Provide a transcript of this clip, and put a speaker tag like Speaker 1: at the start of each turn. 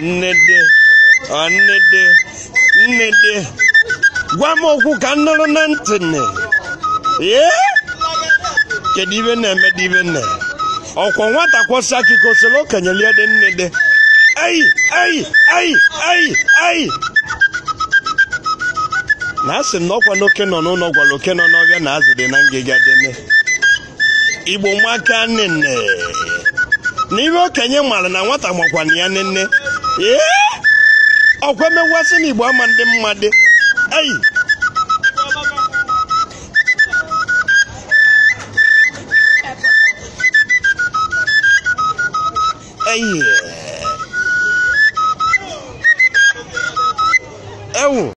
Speaker 1: Nnede, nnede, nnede, gwa m okwu ka m nụrụ na ntị nne. Ee, kedu ibe na-eme dị ibe nne? Ọkwa nwata kwọsa akụkọ soro okenye lie dị nnede. Ayi, ayi, ayi, ayi, Na asị m na ọkwa n'oke nọ n'ụlọ gwara oke nọ n'ọbịa na azụ dị na ngịga dị nne. Igbo maka nne nne. na ihe okenye mara na nwata na ya nne nne Eh? ọkwa mewasị n'igbo ama ndị mmadụ
Speaker 2: eyi
Speaker 3: eyi ewu